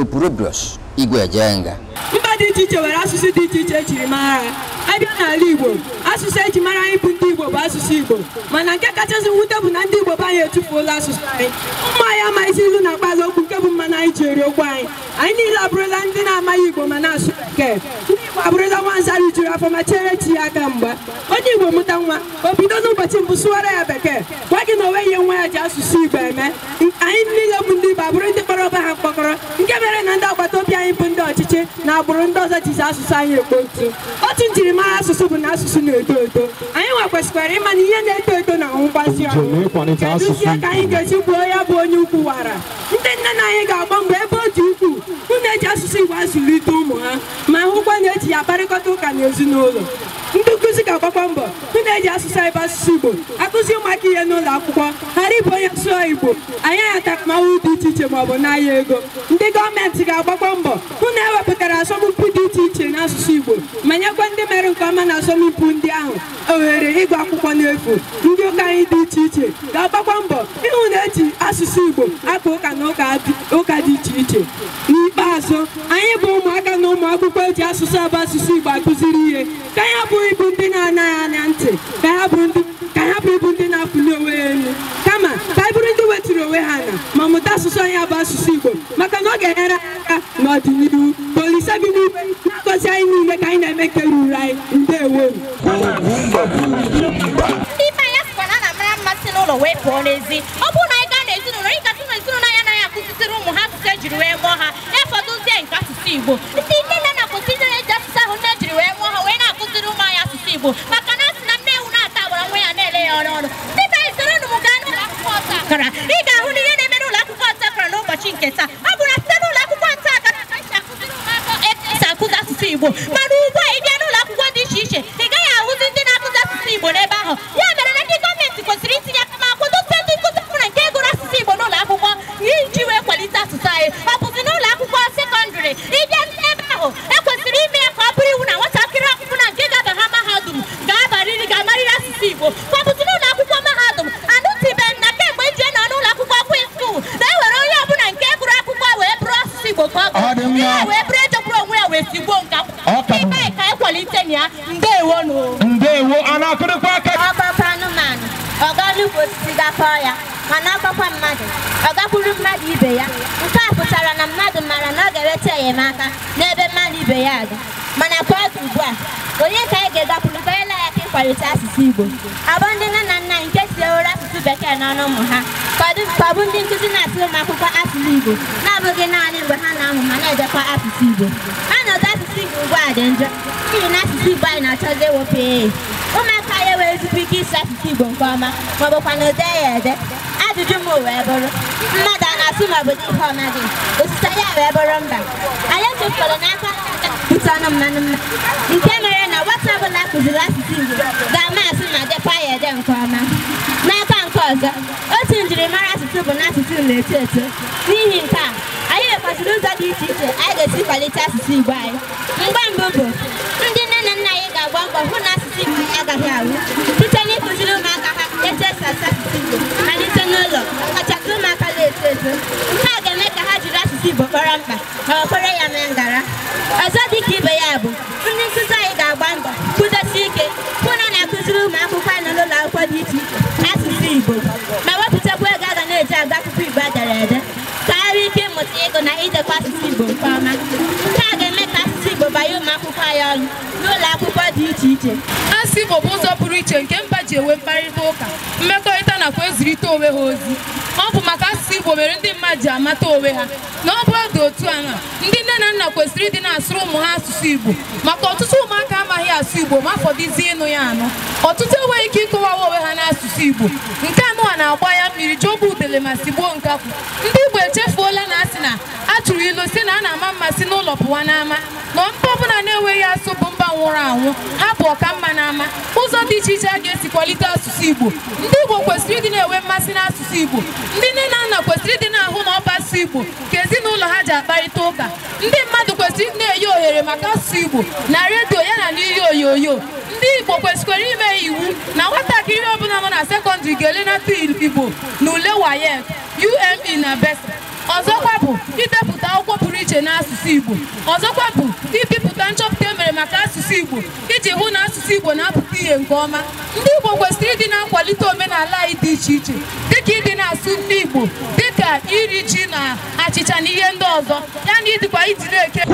Opróbrios Igwe Ejenga. dị iche iche nwere asụsụ dị iche iche echiri mara ha abịa n'ala Igbo asụsụ eji mara anyị bụ ndị Igbo bụ asụsụ Igbo mana nke kachasị nwute bụ na ndị Igbo bụ anyị etufuola asụsụ anyị ụmụ anyị amaghịzi ilu na mkpazi okwu nke bụ mmanụ anyị ji eri okwu anyị anyị niile abụrụla ndị na-amaghị Igbo ma na-asụ bekee ndị Igbo abụrụla nwanza rijuru afọ ma chere chi ya aka mgba onye Igbo mụta nwa o bido n'ụbọchị mbụ sụwara ya bekee gwa gị na onwe ihe nwa ya ji asụsụ Igbo eme anyị niile bụ ndị Igbo abụrụ ndị kpọrọ ọba ha mkpọkọrọ nke mere na ndị agbata obi anyị bụ ndị ọcha na agbụrụ ndị ọzọ jizi asụsụ anyị ekpo ntu otu njirimara asụsụ bụ na asụsụ na-eto eto anyị nwekwesịkwara ịma na ihe na-eto eto na mgbazi ọnụ kedụzie ka anyị ga-esi gbuo ya bụ onye ukwu wara ndị nne na anyị ga-agba mgbe ebe o ji ukwuu hụ na-eji asụsụ Igbo azụlite ụmụ ha ma hụkwa na-eji ya kparịkọta ụka na ezinụlọ ndị nkụzi ga-agbakwa mbọ hụ na-eji asụsụ anyị asụsụ Igbo akụzi ụmụaka ihe n'ụlọ akwụkwọ ghara ịbụ onye sụọ Igbo anyị agha dị iche iche maọbụ n'ahịa ego ndị gọọmenti ga-agbakwa mbọ hụ ama na asọmpi ndị ahụ ohere ịgụ akwụkwọ n'efu ndị ụka anyị dị iche iche ga-agbakwa mbọ ịhụ na eji asụsụ Igbo akpa ụka na ụka dị iche iche n'ikpeazụ anyị bụ ụmụaka na ụmụakwụkwọ akwụkwọ eji asụsụ abụ asụsụ Igbo akụziri ihe ka ya bụ ịbụ ndị na-anaghị anya ntị ka ya bụ ndị ọ ga-enyere anyị aka n'ọdịnihu polise bi n'igwe na-agọzi anyị niile ka anyị na-eme nke ruru anyị ndewo ibe anya sịkwa na ana mara mmasị n'ụlọ wee pụọ n'ezi ọ bụrụ na anyị gaa n'ezinụlọ ị gasị na ezinụlọ ya anaghị akụzitiri ụmụ ha asụsụ ejiri wee mụọ ha efọdụzie nke asụsụ igbo ndị nne na na ndị na-eji asụsụ ahụ nne jiri wee mụọ ha wee na-akụziri ụmụ anyị asụsụ igbo maka na asị na nne ewu na-ata agbara nwa ya na-ele ya ọrụ ọrụ ndị be anyị m gaa n'ụlọ akwụkwọ ọta akara ị ga-ahụ na ihe na emere ụlọ akwụkwọ ọta akara n'ụbọchị nke taa asụsụ Igbo mana ugbu a ị bịa n'ụlọ akwụkwọ dị iche iche ị gaghị ahụzi ndị na-akụzi asụsụ Igbo n'ebe ahụ ya mere na ndị gọọmenti kwesịrị itinye aka ma kwadote ndị nkụzi ọbụla nke gụrụ asụsụ Igbo n'ụlọ akwụkwọ iji wee kwalite asụsụ anyị ọ bụzi ụlọ akwụkwọ sekọndịrị ịbịa n'ebe ahụ ekwesịrị ime ya ka ọ bụrụ iwu na nwatakịrị na nke ga-aba ha mahadum ga-abarịrị ga-amarịrị asụsụ Igbo ka ọ bụzi n'ụlọ akwụkwọ mahadum anụtụbeghị kemgbe eji nọ n'ụlọ akwụkwọ kwụ na e nwere onye ọbụla nke gụrụ akwụkwọ wee bụrụ asụsụ Igbo ka ọ ọkpọkwa anụmanụ ọ gaa n'ukwu osisi gakọọ ya mana ọkpọkwa mmadụ ọ gakwuru mmadụ ibe ya nke a pụtara na mmadụ maara na ọ ga-enweta enyemaka n'ebe mmadụ ibe ya aga mana ka ọ dị ugbu a onye ka anyị ga-egakwuru ka anyị ya ka ịkwalite asụsụ Igbo abụ ndị nne na nna nke ewere asụsụ bekee n'ọnụ ụmụ ha kọbụ ndị nkụzi na-atụ ụmụ akwụkwọ asụsụ Igbo na-abụghị naanị mgbe ha na-amụ ma na-edekwa asụsụ Igbo ọnọdụ asụsụ Igbo ugbu a dị njọ n'ihi na asụsụ Igbo anyị na-achọzi ewepụ ehe ụmụaka ya wee tupu ike isi asụsụ Igbo nke ọma maọbụkwa na ode ya ede ajụjụ m wee bụrụ mmadụ a na-asụ maọbụ n'ihe ọ naghị osise ya wee bụrụ mba anyị echefukọrọ n'aka pụta ọnụ mmanụ mma nke mere na nwata ọbụla kụziri asụsụ Igbo ga-ama asị ma dịkwa ya ede nke ọma n'aka nke ọzọ otu njirimara asụsụ bụ na asụsụ na-eto eto n'ihi nke a anyị nwekwaziri ụzọ dị iche iche anyị ga-esi kwalite asụsụ Igbo anyị mgbe mbụ bụ ndị nne na nna anyị ga agwa mbọ hụ na agaghị awụ site n'ịkụziri ụmụaka ha etu esi asụ Igbo malite n'ụlọ ọkachasị ụmụaka na-eto eto nke a ga-eme ka ha jiri asụsụ Igbo kpọrọ mkpa ma ọ kwere ya mee ngara ọzọ dị ka ibe ya bụ ndị nkụzi anyị ga-agba mbọ kwudosi ike hụ na na-akụziri ụmụakwụkwọ anyị n'ụlọ akwụkwọ dị iche iche asụsụ Igbo ma wepụtakwa ego a ga na-eji agụ akwụkwọ Igbo edere ede ka ha ike ịmụta ịgụ na idekwa asụsụ Igbo nke ọma Igbo banye n'ụlọ dị iche iche asụsụ Igbo bụ ụzọ pụrụ iche nke mba ji enwe mkparịta ụka mmekọrịta nakwa ezirite onwe ha ozi ọ bụ maka asụsụ Igbo mere ndị mmadụ ji amata onwe ha na ọ bụrụ dị otu ana ndị nne na nna kwesịrị ịdị na-asụrụ ụmụ ha asụsụ Igbo maka ọtụtụ ụmụaka amaghị asụ Igbo ma fọdụzie ịnụ ya anụ ọtụtụ enweghị ike ịkọwawa onwe ha n'asụsụ Igbo nke anụwa na-agba ya mmiri jọba udele ma sigbuo nkakwụ ndị Igbo echefuola na sị na a na-ama mmasị si n'ụlọ pụwa n'ama na mba ọbụla na-enweghị asụ bụ mba nwụrụ anwụ ha bụ ọka mma n'ama ụzọ dị iche iche a ga-esi kwalite asụsụ Igbo ndị Igbo kwesịrị ịdị na-enwe mmasị n'asụsụ Igbo ndị nne na nna kwesịrị ịdị na-ahụ na ọba asụsụ Igbo ka ezinụlọ ha ji akparịta ụka ndị mmadụ kwesịrị na-enye ohere maka asụsụ Igbo na redio ya na n'ihe onyonyo ndị Igbo kwesịkwara ime iwu na nwatakịrị ọbụla nọ na sekọndịrị ga-elenata Igbo e na ule WAEC UME na BESA ọzọkwa bụ ibepụta akwụkwọ pụrụ iche n'asụsụ Igbo ọzọkwa bụ ibipụta nchọpụta e mere maka asụsụ Igbo iji hụ na asụsụ Igbo na-apụta ihe nke ọma ndị Igbo kwesịrị ịdị na-akwalite omenala anyị dị iche iche dịka ịdị na-asụ ndị Igbo dịka iri ji na achịcha na ihe ndị ọzọ na ịdịkwa ijiri eke